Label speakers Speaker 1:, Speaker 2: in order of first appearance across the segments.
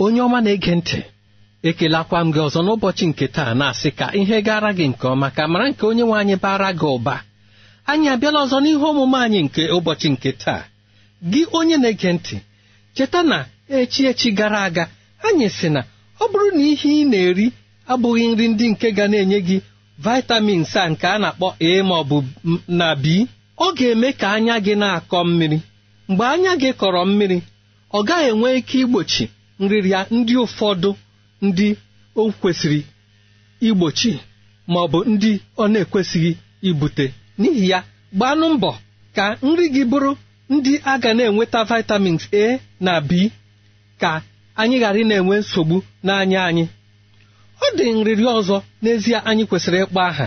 Speaker 1: onye ọma na-ege ntị ekelakwa m gị ọzọ n'ụbọchị nke taa na-asị ka ihe gara gị nke ọma ka mara nke onye nwe anyị bara gị ụba anyị abịala ọzọ n'ihe omume anyị nke ụbọchị nke taa gị onye na-ege ntị cheta na echi echi gara aga anyị sị na ọ bụrụ na ihe ị na-eri abụghị nri ndị nke ga na-enye gị vitamins a nke a na-akpọ a ma ọ bụ na b ọ ga-eme ka anya gị na-akọ mmiri mgbe anya gị kọrọ mmiri ọ gaghị enwe ike igbochi nrịrịa ndị ụfọdụ ndị o kwesịrị igbochi ma ọ bụ ndị ọ na-ekwesịghị ibute n'ihi ya gbanụ mbọ ka nri gị bụrụ ndị a ga na-enweta vitamins A na B ka anyị ghara ị na-enwe nsogbu n'anya anyị ọ dị nrịrị ọzọ n'ezie anyị kwesịrị ịkpọ aha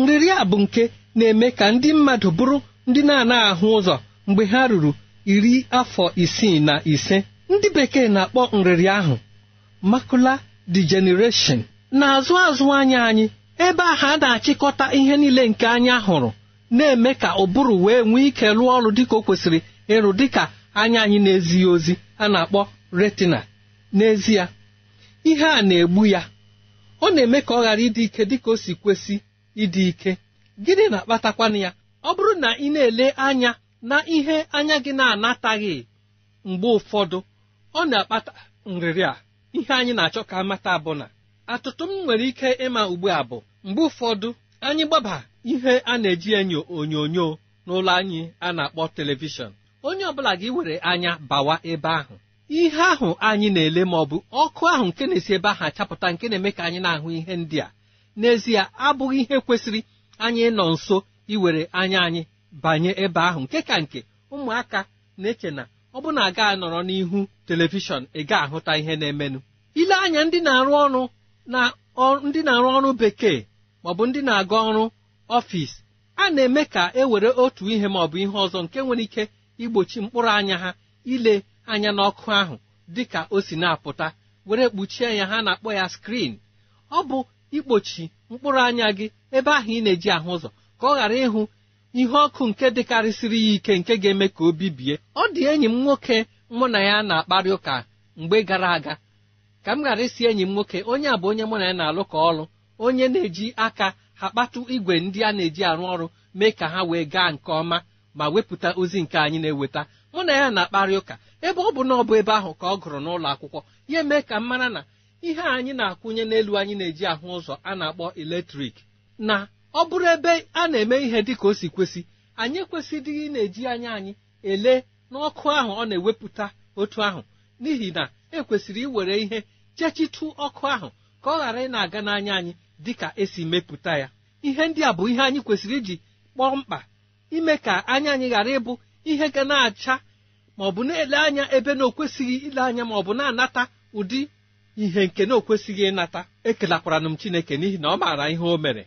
Speaker 1: nrịrị a bụ nke na-eme ka ndị mmadụ bụrụ ndị na-anaghị ahụ ụzọ mgbe ha ruru iri afọ isii na ise ndị bekee na-akpọ nrịrị ahụ makula degeneration na-azụ azụ anya anyị ebe ahụ a na-achịkọta ihe niile nke anya hụrụ na-eme ka ụbụrụ wee nwee ike rụọ ọrụ dịka o kwesịrị ịrụ dịka anya anyị na-ezighị ozi a na-akpọ retina n'ezie ihe a na-egbu ya ọ na-eme ka ọ ghara ịdị ike dịka o si kwesị ịdị ike gịnị na-akpatakwana ya ọ bụrụ na ị na-ele anya na ihe anya gị na-anataghị mgbe ụfọdụ ọ na-akpata nrịrị a ihe anyị na-achọ ka amata bụ na atụtụ m nwere ike ịma ugbu a bụ mgbe ụfọdụ anyị gbaba ihe a na-eji enyo onyonyo n'ụlọ anyị a na-akpọ telivishọn onye ọbụla gị were anya bawa ebe ahụ ihe ahụ anyị na-ele ma ọ bụ ọkụ ahụ nke na-esi ebe ahụ achapụta nke na-eme ka anyị na-ahụ ihe ndị a n'ezie abụghị ihe kwesịrị anyị nọ nso iwere anya anyị banye ebe ahụ nke ka nke ụmụaka na-eche na ọ bụ na aga anọrọ n'ihu telivishọn ị ga ahụta ihe na-emenụ ile anya ndị na-arụ ọrụ na ndị na-arụ ọrụ bekee maọbụ ndị na-aga ọrụ ọfisi a na-eme ka e were otu ihe maọbụ ihe ọzọ nke nwere ike igbochi mkpụrụ anya ha ile anya n'ọkụ ahụ dị ka o si na-apụta were kpuchie ya ha na-akpọ ya skrin ọ bụ ikpochi mkpụrụ anya gị ebe ahụ ị na-eji ahụ ụzọ ka ọ ghara ịhụ ihe ọkụ nke dịkarịsịrị ya ike nke ga-eme ka o bibie ọ dị enyi m nwoke mụ na ya na-akparị ụka mgbe gara aga ka m ghara isi enyi m nwoke onye a bụ onye mụ na ya na-alụ ka ọlụ onye na-eji aka ha kpatụ igwe ndị a na-eji arụ ọrụ mee ka ha wee gaa nke ọma ma wepụta ozi nke anyị na-eweta mụ na ya na-akparị ụka ebe ọ bụ na ọ bụ ebe ahụ ka ọ gụrụ n'ụlọ akwụkwọ ya eme ka m mara na ihe anyị na-akwụnye n'elu anyị na-eji ahụ ụzọ a na-akpọ eletrik na ọ bụrụ ebe a na-eme ihe dị ka o si kwesị anyị ekwesịdịghị na-eji anya anyị ele n'ọkụ ahụ ọ na-ewepụta otu ahụ n'ihi na ekwesịrị iwere ihe chechitu ọkụ ahụ ka ọ ghara ị na-aga n'anya anyị dị ka esi mepụta ya ihe ndị a bụ ihe anyị kwesịrị iji kpọọ mkpa ime ka anya anyị ghara ịbụ ihe ga na-acha ma ọ bụ na-ele anya ebe na okwesịghị ile anya ma ọ bụ na-anata ụdị ihe nke na okwesịghị ịnata ekelakwara m Chineke n'ihi na ọ maara ihe o mere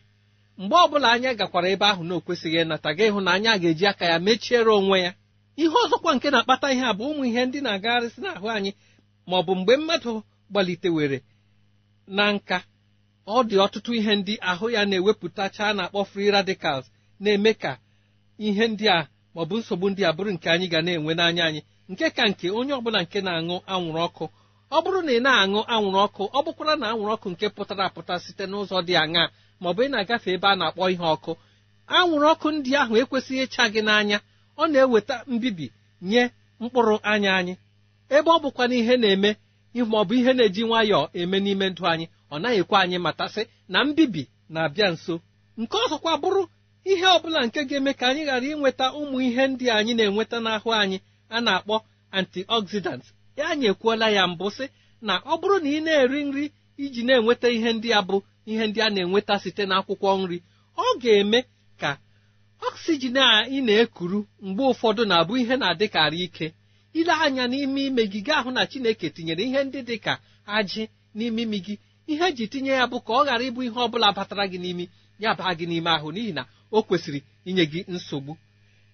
Speaker 1: mgbe ọbụla anya gakwara ebe ahụ na okwesịghị ịnata gị ịhụ na anya ga-eji aka ya mechiere onwe ya ihe ọzọkwa nke na-akpata ihe a bụ ụmụ ihe ndị na-agagharịsị n'ahụ anyị ma ọ bụ mgbe mmadụ gbalitewere na nka ọ dị ọtụtụ ihe ndị ahụ ya na-ewepụtacha na-akpọ fri radicals na-eme ka ihe ndị a ma ọ bụ nsogbu ndị a bụrụ nke anyị ga na-enwe n'anya anyị nke ka nke onye ọbụla nke na-aṅụ anwụrụ ọkụ ọ bụrụ na ị na-aṅụ anwụrụ ọkụ ọ bụkwara na anwụrụ ọkụ nke pụtara apụta site n'ụzọ dị aṅaa maọbụ ị na-agafe ebe a na-akpọ ihe ọkụ anwụrụ ọkụ ndị ahụ ekwesịghị ịcha gị n'anya ọ na-eweta mbibi nye mkpụrụ anya anyị ebe ọ bụkwa na ihe na-eme maọbụ ihe na-eji nwayọọ eme n'ime ndụ anyị ọ naghị ekwe anyị matasị na mbibi na-abịa nso nke ọzọkwa bụrụ ihe ọbụla nke ga-eme ka anyị ghara inweta ụmụ ihe ndị anyị na-enweta n'ahụ anyị a na-akpọ antioxidant ya anyị ekwuola ya mbụ sị na ọ bụrụ na ị na-eri nri iji na-enweta ihe ndị a bụ ihe ndị a na-enweta site n'akwụkwọ nri ọ ga-eme ka oksijin a ị na-ekuru mgbe ụfọdụ na-abụ ihe na-adịkarị ike ile anya n'ime ime ahụ na Chineke tinyere ihe ndị dị ka ajị n'ime imi gị ihe eji tinye ya bụ ka ọ ghara ịbụ ihe ọ bụla batara gị n'imi ya baa gị n'ime ahụ n'ihi na o kwesịrị inye gị nsogbu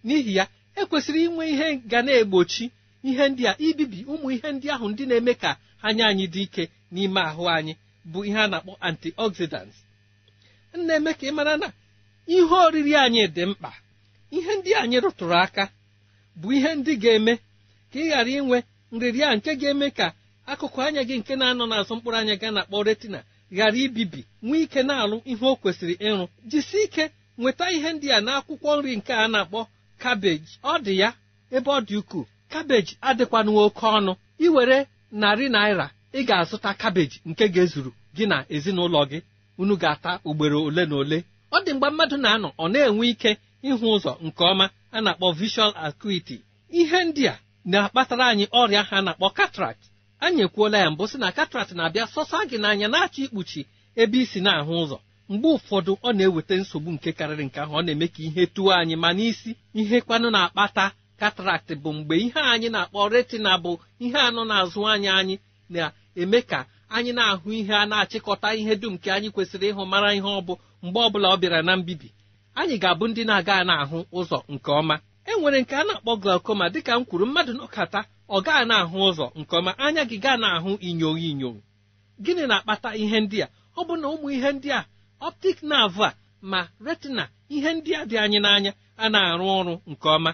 Speaker 1: n'ihi ya ekwesịrị inwe ihe ga na-egbochi ihe ndị a ibibi ụmụ ihe ndị ahụ ndị na-eme ka anya anyị dị ike n'ime ahụ anyị bụ ihe a na-akpọ antioxidants na-eme ka ị mara na ihe oriri anyị dị mkpa ihe ndị anyị rụtụrụ aka bụ ihe ndị ga-eme ka ị ghara inwe nrịrịa nke ga-eme ka akụkụ anya gị nke na-anọ n'azụ mkpụrụ anya ga na-akpọ retina ghara ibibi nwee ike na-alụ ihe o kwesịrị ịrụ jisie ike nweta ihe ndị a n'akwụkwọ nri nke a na-akpọ kabeji ọ dị ya ebe ọ dị ukwuu kabeji adịkwanụ oke ọnụ iwere narị naira ị ga-azụta kabeji nke ga-ezuru gị na ezinụlọ gị unu ga-ata ugboro ole na ole ọ dị mgbe mmadụ na-anọ ọ na-enwe ike ịhụ ụzọ nke ọma a na-akpọ visual acuity ihe ndị a na-akpatara anyị ọrịa ha na-akpọ cataract anyị ekwuola ya mbụ sị na cataract na-abịa sọsa gị n'anya na-achọ ikpuchi ebe isi na-ahụ ụzọ mgbe ụfọdụ ọ na-eweta nsogbu nke karịrị nke ahụ ọ na-eme ka ihe tụọ anyị ma n'isi ihe kwanụ na-akpata cataract bụ mgbe ihe anyị na-akpọ retina bụ ihe anọ na-azụ anya anyị na eme ka anyị na-ahụ ihe a na-achịkọta ihe dum nke anyị kwesịrị ịhụ mara ihe ọ bụ mgbe ọ bụla ọ bịara na mbibi anyị ga-abụ ndị na-aga na-ahụ ụzọ nke ọma e nwere nke a na-akpọ glaucoma dịka m kwuru mmadụ nọkata ọ gaa na-ahụ ụzọ nke ọma anya gị gaa na-ahụ inyo inyo gịnị na-akpata ihe ndị a ọ bụ na ụmụ ihe ndị a optic nerve a ma retina ihe ndị a dị anyị n'anya a na-arụ ọrụ nke ọma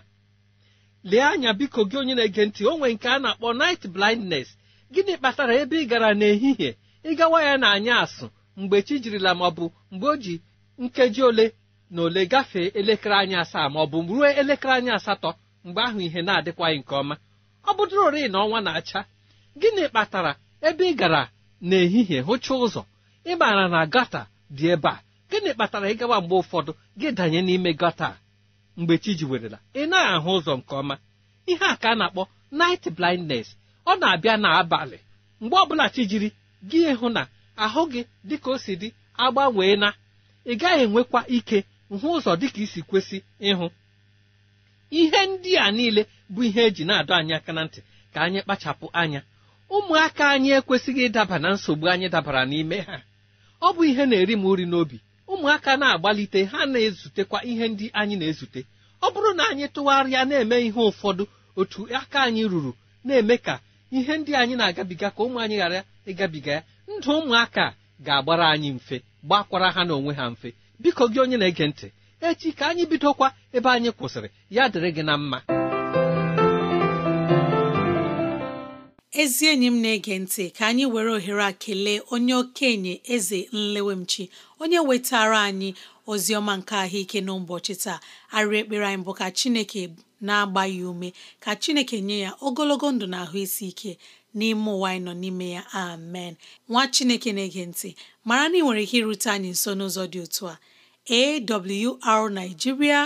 Speaker 1: lee anya biko gị onye na-ege ntị o nwere nke a na-akpọ night blindnes gịnị kpatara ebe ị gara n'ehihie ịgawa ya na anya asụ mgbe chi jirila ma ọ bụ mgbe o ji nkeji ole na ole gafee elekere anya asaa ma ọ bụ ruo elekere anya asatọ mgbe ahụ ihe na-adịkwaghị nke ọma ọ bụdụrori na ọnwa na-acha gịnị kpatara ebe ị gara n'ehihie hụcha ụzọ ị maara na gata dị ebe a gịnị kpatara ịgawa mgbe ụfọdụ gị danye n'ime gata mgbe chi ji werela ị na ahụ ụzọ nke ọma ihe a ka a na-akpọ night blindness ọ na-abịa n'abalị mgbe ọbụla bụla chijiri gị hụ na ahụ gị dịka o si dị agbanwee na ị gaghị enwekwa ike hụ ụzọ dịka isi kwesị ịhụ ihe ndị a niile bụ ihe eji na-adọ anyị aka na ntị ka anyị kpachapụ anya ụmụaka anyị ekwesịghị ịdaba na nsogbu anyị dabara n'ime ha ọ bụ ihe na-eri m uri n'obi ụmụaka na-agbalite ha na-ezutekwa ihe ndị anyị na-ezute ọ bụrụ na anyị tụgharịa na-eme ihe ụfọdụ otu aka anyị ruru na-eme ka ihe ndị anyị na-agabiga ka ụmụ anyị ghara ịgabiga ya ndụ ụmụaka ga-agbara anyị mfe gbakwara ha n'onwe ha mfe biko gị onye na-ege ntị echi ka anyị bidokwa ebe anyị kwụsịrị ya dịrị gị na mma
Speaker 2: ezi enyi m na-ege ntị ka anyị were ohere a kelee onye okenye eze nlewemchi onye wetara anyị ozi ọma nke ahụike n'ụbọchị taa arịrị ekpere anyị bụ ka chineke na-agba ya ume ka chineke nye ya ogologo ndụ na ahụ isi ike n'ime ụwa anyị nọ n'ime ya amen nwa chineke na-ege ntị mara na ị nwere ike irute anyị nso n'ụzọ dị otu a awrnigeria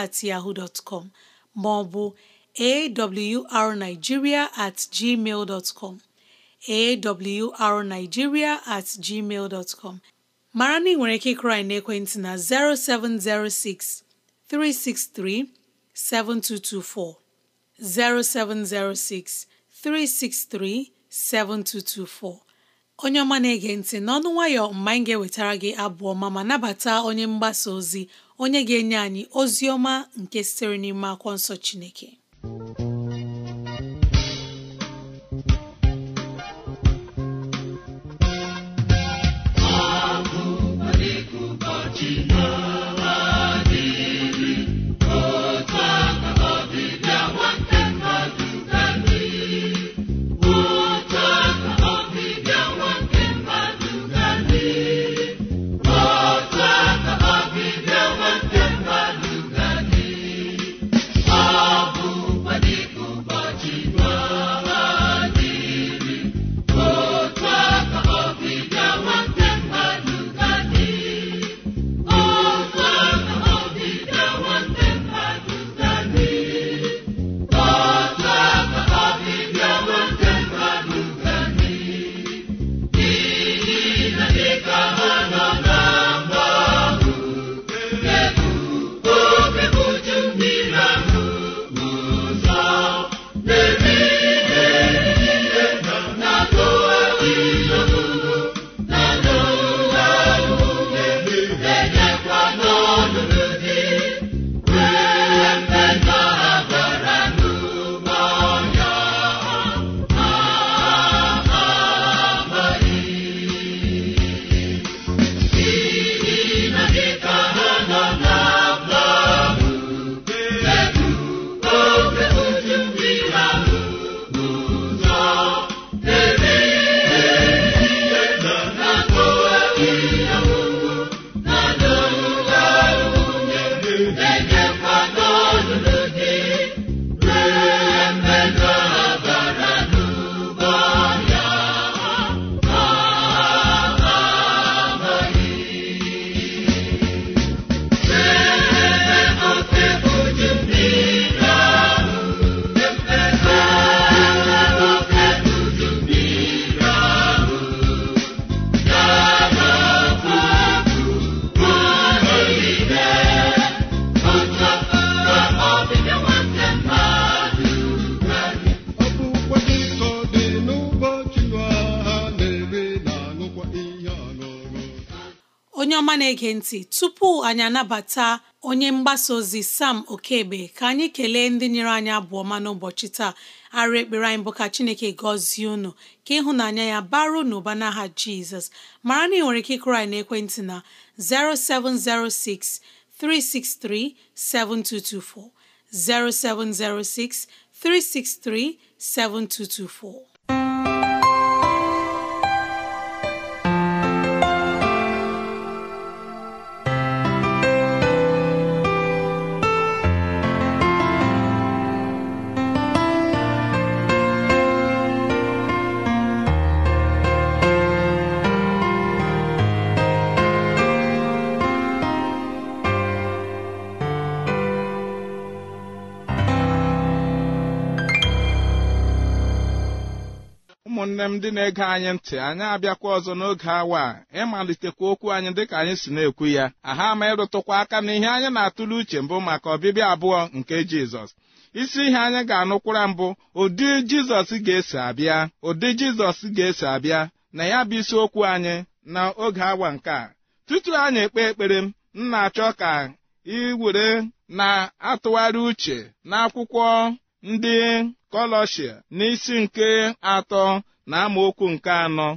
Speaker 2: at at com ma ọ awrnigeria at gmail dot com mara na nwere ike ịkụrụ anyị n'ekwentị na 0706 363 7224 0706 363 7224 onye ọma na-ege ntị na ọnụ mgbe anyị ga-ewetara gị abụọ ma ma nabata onye mgbasa ozi onye ga-enye anyị ozi ọma nke sitere n'ime akwọ nsọ Chineke na-ege ntị tupu anyị anabata onye mgbasa ozi Sam okebe ka anyị kelee ndị nyere anyị abụọ ma n'ụbọchị taa arị ekpere anyị bụ ka Chineke gọzie unu ka ịhụnanya ya baro n'ụba n'aha Jizọs mara na ị nwere ike ịkụrụ anyị n'ekwentị na 0706 363 7224 0706 363 7224
Speaker 3: ụmụnne m ndị na-ege anyị ntị anyị abịakwa ọzọ n'oge awa a ịmalitekwa okwu anyị dịka anyị si na-ekwu ya aha ma ịrụtụkwa aka na ihe anyị na-atụle uche mbụ maka ọbịbịa abụọ nke Jizọs isi ihe anyị ga-anụkwara mbụ ụdị Jizọs ga-esi abịa ụdị Jizọs ga-esi abịa na ya bụ isiokwu anyị na oge awa nke a tutu anyị ekpe ekpere m m na-achọ ka ị were na-atụgharị uche n'akwụkwọ ndị kọlọshia n'isi nke atọ na amaokwu nke anọ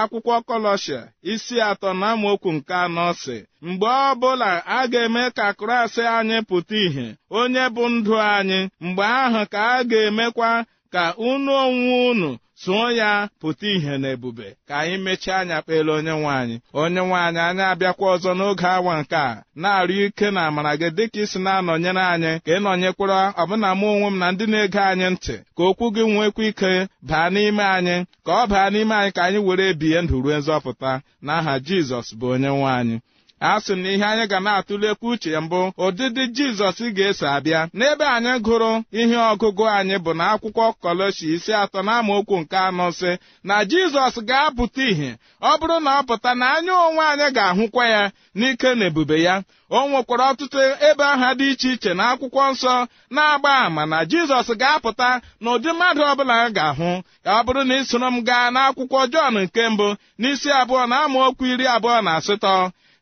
Speaker 3: akwụkwọ kọlọshia isi atọ na amaokwu nke anọ si mgbe ọ bụla a ga-eme ka Kraịst anyị pụta ìhè onye bụ ndụ anyị mgbe ahụ ka a ga-emekwa ka unu onwe unu tụọ ya pụta ihe na ebube ka anyị mechie anya kpere onye nwaanyị onye nwaanyị anyị abịakwa ọzọ n'oge awa nke a na-arịọ ike na amara gị dịka isi na-anọnyere anyị ka ị nọnyekwara ọbụna mụ onwe m na ndị na-ege anyị ntị ka okwu gị nwekwa ike baa n'ime anyị ka ọ baa n'ime anyị ka anyị were ebihe ndụ ruo nzọpụta n'aha Jizọs bụ onye nwaanyị asị m na ihe anyị ga na-atụlekwu uche mbụ ụdịdị jizọs ga-eso abịa n'ebe anyị gụrụ ihe ọgụgụ anyị bụ na akwụkwọ kọlọshi isi atọ na amaokwu nke anọ sị na jizọs ga-apụta ìhè ọ bụrụ na ọ pụta na anya onwe anyị ga-ahụkwa ya n'ike na ebube ya o nwekwara ọtụtụ ebe aha dị iche iche na akwụkwọ nsọ na-agba àmà na jizọs ga-apụta na ụdị mmadụ ọbụla ga-ahụ ọ bụrụ na ị soro m gaa n'akwụkwọ jọn nke mbụ n'isi abụọ na amaokwu iri abụọ na asatọ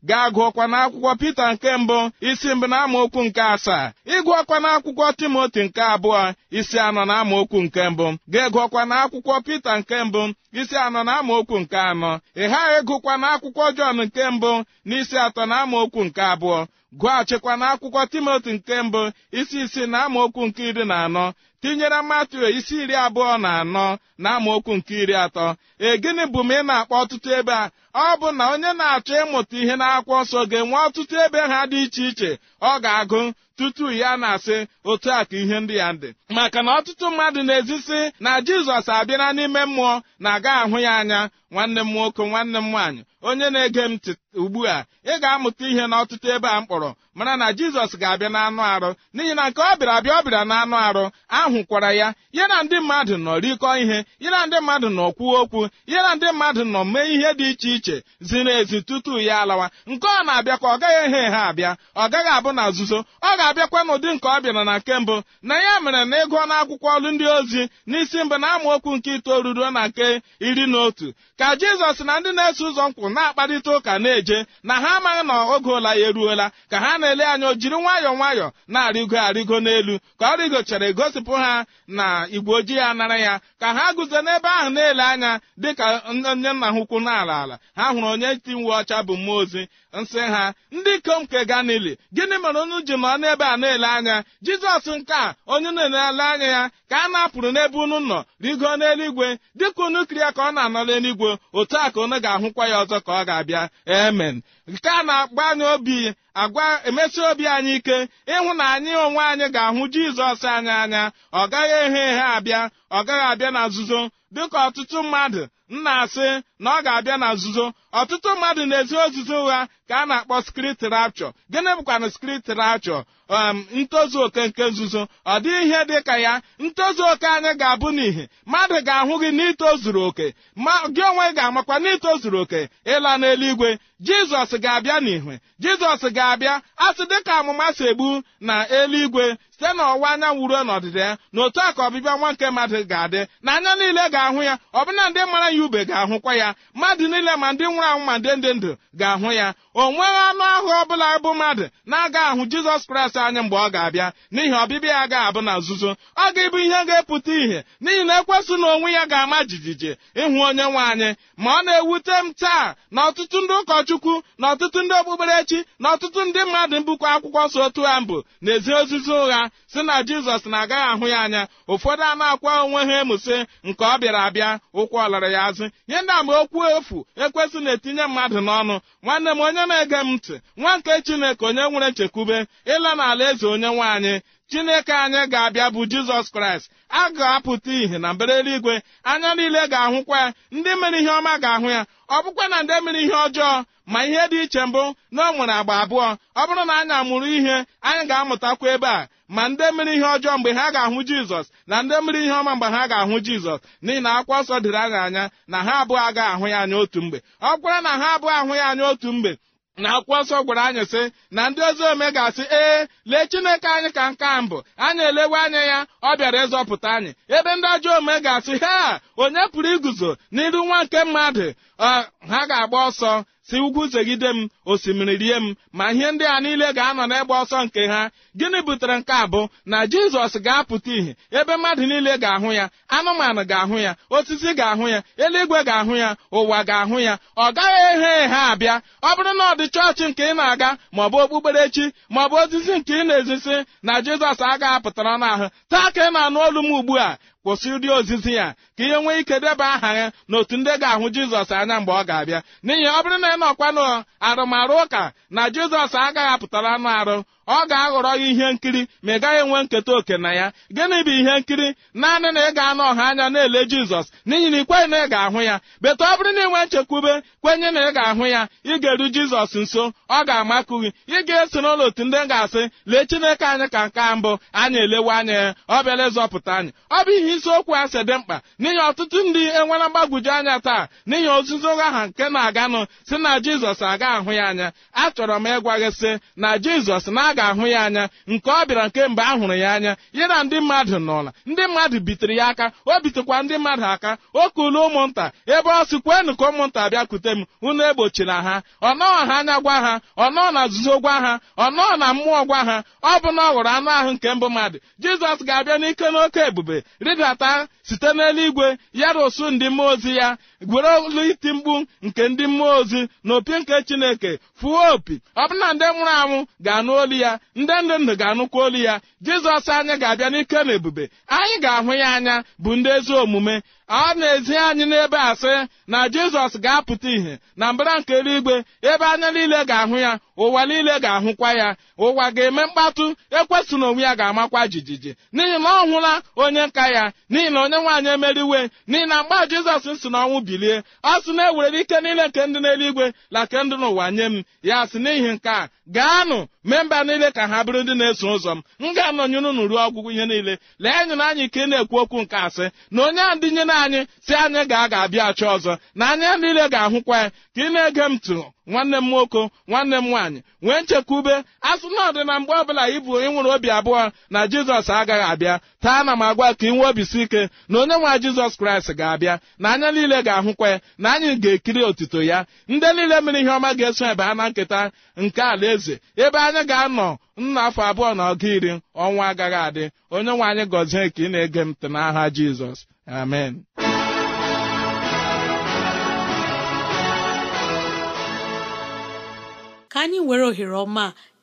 Speaker 3: ga gụọkwa n'akwụkwọ pita nke mbụ isi mbụ na amaokwu nke asaa ịgụọkwa n'akwụkwọ timoti nke abụọ isi anọ na amaokwu nke mbụ ga-egụọkwa n'akwụkwọ pita nke mbụ isi anọ na amaokwu nke anọ ị ghaghị ịgụkwa na akwụkwọ Jọn nke mbụ na isi atọ na okwu nke abụọ gụghachikwa na akwụkwọ Timoti nke mbụ isi isi na okwu nke iri na anọ tinyere Matiu isi iri abụọ na anọ na okwu nke iri atọ e gịnị bụ m ị na-akpọ ọtụtụ ebe a ọ bụ na onye na-achọ ịmụta ihe n'akwụkwọ nsọ ga-enwe ọtụtụ ebe ha dị iche iche ọ ga-agụ tutu ya na-asị otu a ka ihe ndị ya dị maka na ọtụtụ mmadụ na-ezisi na jizọs abịala n'ime mmụọ na-aga ahụ ya anya nwanne m nwoke nwanne m nwaanyị onye na-ege m ugbu a ị ga-amụta ihe n'ọtụtụ ebe a mkpọrọ mara na jizọs ga-abịa n'anụ arụ n'ihi na nke ọ bịara abịa ọ bịara n'anụ arụ ahụkwara ya ya na ndị mmadụ nọ rikọ ihe ya na ndị mmadụ nọ kwuo okwu ya na ndị mmadụ nọ mee ihe dị iche iche ziri ezi tutu ya alawa nke ọ na abịa ka ọ gaghị eghe ha abịa ọ gaghị abụ na nzuzo ọ ga-abịakwa n'ụdị nke ọ bịara na nke mbụ na ya mere na ịgụọ n'akwụkwọ ndị ozi n'isi mbụ na amaokwu nke itoolu ruo na nke iri na otu ka jizọs na ndị na-eso ụzọ nkwụ na-akparịta ụka na-eje na ha amaghị na oge ụla ya eruola ka ha na-ele anya o jiri nwayọọ nwayọọ na-arịgo arịgo n'elu ka ọ rịgochara gosipụ ha na igwe ojii ya nara ya ka ha guzo n'ebe ahụ na-ele anya dịka onye nna ha ukwu na ala ha hụrụ onye nti uwe ọcha bụ mmụọ ozi nsị ha ndị ikom nke ganili gịnị mere unu ji nọ n'ebe a na-ele anya jizọs nke a onye na-ele anya ya ka a na-apụrụ n'ebe unu nọ rigo n'eluigwe dịka unu ka ọ na-anọ n'eluigwe otu a ka unu ga-ahụkwa ya ọzọ ka ọ ga-abịa emen nke a na-agba anyị obi agwa emesi obi anyị ike ịhụ na anyị onwe anyị ga-ahụ jizọs anyị anya ọ gaghị ehe ehe abịa ọ gaghị abịa na nzuzo dịka ọtụtụ mmadụ nna asị na ọ ga-abịa na nzuzo ọtụtụ mmadụ na-ezi ozuzo ụgha ka a na-akpọ skrit rapchọ gịnị bụkwana skrit rapchọ ntozu oke nke nzuzo ọ dịghị ihe dị ka ya ntozu oke anyị ga-abụ n'ihi mmadụ ga-ahụ gị n'itozuru oke ma gị onwe ga-amakwa n'itozuru oke ịla n'eluigwe jizọs ga-abịa n'ihwe jizọs ga-abịa asị dịka amụma si egbu na eluigwe site n'ọwụwa anyanwụ ruo n'ọdịda ya na otu a ka ọbịbịa nwa nke mmadụ ga-adị na anya niile ga-ahụ ya ọbụna ndị mara ya ube ga-ahụkwa ya mmadụ niile ma ndị nwụrụ anwụ ma ndị ndụ ga-ahụ ya o nweghị anụ ahụ ọbụla bụ mmadụ na-aga ahụ jizọs kraịst anya mgbe ọ ga-abịa n'ihi ọbịbịa ya ga-abụ na nzuzo ọ ga-ebu ihe ga-epụta ihe n'ihi na ekwesị na onwe ya ga-ama jijiji ịhụ onye nwe anyị ma ọ na-ewute m taa na ọtụtụ ndị ụkọchukwu na ọtụtụ ndị okpukperechi na ọtụtụ ndị mmadụ mbụkọ akwụkwọ so otu ha mbụ na-ezi ozizi ụgha si na jizọs na-agaghị ahụ ya anya ụfọdụ anụ akwa onwe ha emuse nke ọ bịara abịa ụkwụ ọlara ya azụ ihe ndị okwu efu ekwesị na na-etinye mmadụ n'ọnụ nwanne m onye na-ege m ntị nwa nke chineke onye nwere nchekwube ịla n'ala eze onye nwaanyị chineke anyị ga-abịa bụ jizọs kraịst a ga-apụta ìhè na mbara eluigwe anya niile ga-ahụkwa ya ndị mere ihe ọma ga-ahụ ya ọ bụkwa na ndị mere ihe ọjọọ ma ihe dị iche mbụ na o nwere agba abụọ ọ bụrụ na anyị amụrụ ihe anyị ga-amụtakwa ebe a ma ndị mere ihe ọjọọ mgbe ha ga-ahụ jizọs na ndị mere ihe ọma mgbe ha ga-ahụ jizọs n'ihi na akwa ọsọ dịrị anyị anya na ha abụọ agaghị ahụ ya anya otu mgbe ọ gwara na ha abụọ ahụ ya anya otu mgbe na akwụkwọ nsọ gwara anyị sị na ndị ozi ome ga-asị ee lee chineke anyị ka nke a mbụ anyị elewe anya ya ọ bịara ịzọpụta anyị ebe ndị ajọ ome ga-asị ha onye pụrụ iguzo n'iru nwa nke mmadụ ha ga-agba ọsọ si ugwu zegide m osimiri rie m ma ihe ndị a niile ga-anọ n'egbe ọsọ nke ha gịnị butere nke a bụ na jizọs ga-apụta ìhè ebe mmadụ niile ga-ahụ ya anụmanụ ga-ahụ ya osisi ga-ahụ ya eluigwe ga-ahụ ya ụwa ga-ahụ ya ọ gaghị eghe eghe abịa ọ bụrụ na ọ dị chọọchị nke ị na-aga maọbụ okpukperechi maọbụ osisi nke ị na-ezisi na jizọs agaghị apụtara n'ahụ taa ka ị na-anụ olu m ugbu a kwụsị ụdị ozizi ya ka ihe nwee ike deba aha ya n'otu ndị ga-ahụ jizọs anya mgbe ọ ga-abịa n'ihi ọ bụrụ na ị nọkwa arụmarụ ụka na jizọs agaghị apụtara anụ arụ ọ ga-aghọrọ gị ihe nkiri ma ị gaghị enwe nketa oke na ya gịnị bụ ihe nkiri naanị na ị ga-anọ ọha anya na-ele jizọs n'ihi na ị kweghị na ị ga-ahụ ya beta ọ bụrụ na ị nwee nchekwube kwenye na ị ga-ahụ ya ị ga-eru jizọs nso ọ ga-amakụ gị ị ga-eso n'ụlọ otu ndị ga-asị lee chineke anyị ka nke mbụ anyị elewe anya ya ọ bịala ịzọpụta anyị ọ bụ ihe ihe isiokwu a si dị mkpa n'ihi ọtụtụ ndị enwela mgbagwoju anya taa n'ihi ozuzo aha nke na-aganụ si na jizọs aga ahụ ya anya achọrọ m ịgwa gị sị na jizọs na a ga-ahụ ya anya nke ọ bịara nke a hụrụ ya anya ya na ndị mmadụ n'ụla ndị mmadụ bitere ya aka o bitekwa ndị mmadụ aka o kulu ụmụnta ebe ọ sị kwenụ ka ụmụnta bịakwute m unu egbochila ha ọ nọọ ha anya gwa ha ọ nọọ na nzuzo gwa ha ọ nọọ na mmụọ gwa ha ọ bụ na ọ ghọrọ anụ ahụ nke mbụ mmadụ jizọs ga-abịa n'ike n'oke ebube ga-ata site n'eluigwe ya rụsụ ndị mmụọ ozi ya gwere olu iti mkpu nke ndị mmụọ ozi na opi nke chineke fuo opi ọ bụ na ndị nwụrụ anwụ ga-anụ olu ya ndị ndụ ndụ ga-anụkwa olu ya jizọs anyị ga-abịa n'ike na ebube anyị ga-ahụ ya anya bụ ndị ezi omume ọ na-ezi anyị n'ebe asị na jizọs ga-apụta ìhè na mbara nke eluigwe ebe anya niile ga-ahụ ya ụwa niile ga-ahụkwa ya ụwa ga-eme mkpatụ ekwesụ na onwe ya ga-amakwa jijiji n'ihi na ọ hụla onye nka ya n'ihi na onye nwaanyị emeriwe n'ihi na mgbe jizọs si n'ọnwụ bilie ọ sị na-ewere ike niile nke ndị n'eluigwe na nke ndị n'ụwa nye m ya sị n'ihi nke a gaanụ memba niile ka ha bụrụ ndị na-eso ụzọ m m ga-anọnyere unu ruo ọgwụgwụ ihe niile lee na anyị ka ị na-ekwu okwu nke asị na onye a na anyị si anyị ga ga-abịa achọ ọzọ na anya niile ga-ahụkwa ya ka ị na-ege m ntị nwanne m nwoke nwanne m nwaanyị nwee ube asụ na ọdị na mgbe ọbụla ịbụ ịnwụrụ obi abụọ na jizọs agaghị abịa taa na m agwa ka ị obi obisi ike na onye nwa jizọs kraịst ga-abịa na anya niile ga-ahụkwa ya na anyị ga-ekiri otito ya ndị niile mere ihe ọma ga-eso ebe ha na nketa nke eze ebe a Onye ga-anọ nna afọ abụọ na ọga iri ọnwa agaghị adị onye nwe anyị gọzie ka ị na-ege mtụ ntị n'aha Jizọs amen
Speaker 2: ka anyị were ohere ọma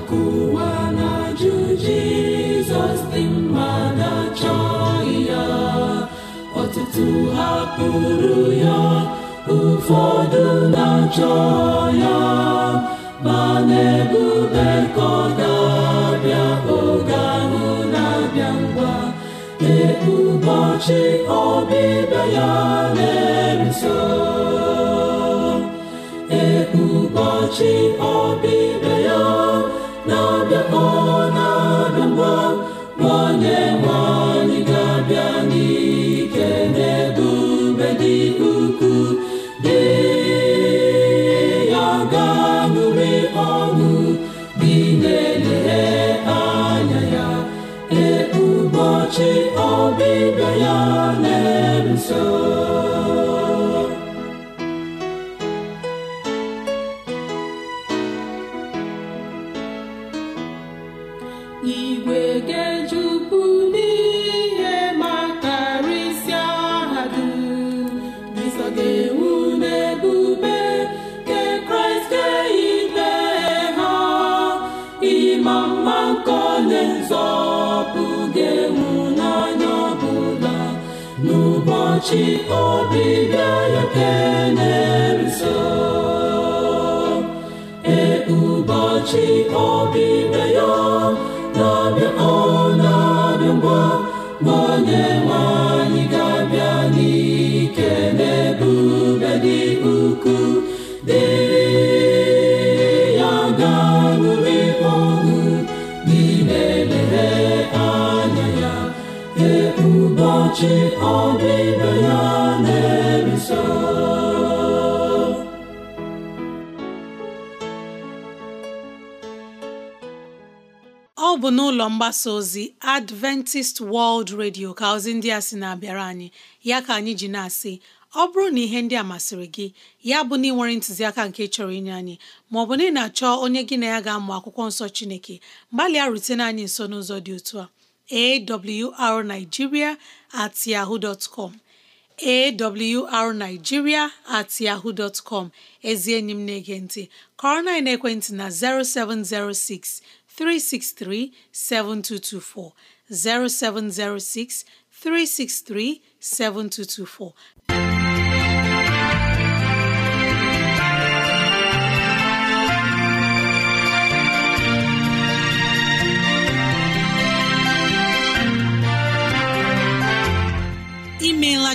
Speaker 4: akụwa na-ajụ jizọs dị mma na-achọghị ya ọtụtụ hapụrụ ya ụfọdụ na-achọ ya ma na-ebube ga-abịa oge ahụ na-abịa ngwa ee ọbịbịa ya na e so. ọbịbịa e onye nwe ga-abịa n'ike n'ebube dị ukwuu dị ya ga ọṅụ dị na-elehe anya ya ee ụbọchị ọbịbịa ya na-eso ọ bụ
Speaker 2: n'ụlọ mgbasa ozi Adventist World Radio ka ozi ndị a si na-abịara anyị ya ka anyị ji na-asị ọ bụrụ na ihe ndị a masịrị gị ya bụ na ị nwere ntụziaka nke chọrọ inye anyị maọbụ na ị na-achọ onye gị na ya ga-amụ akwụkwọ nsọ Chineke gbalịa rutene anyị nso n'ụzọ dị otu a awrnigeria at yahoo dot com awrnigeria at yahoo dot com ezi enyi m na-ege ntị na ekwentị na 0706 363 7224 0706 363 7224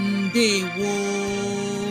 Speaker 2: ndewo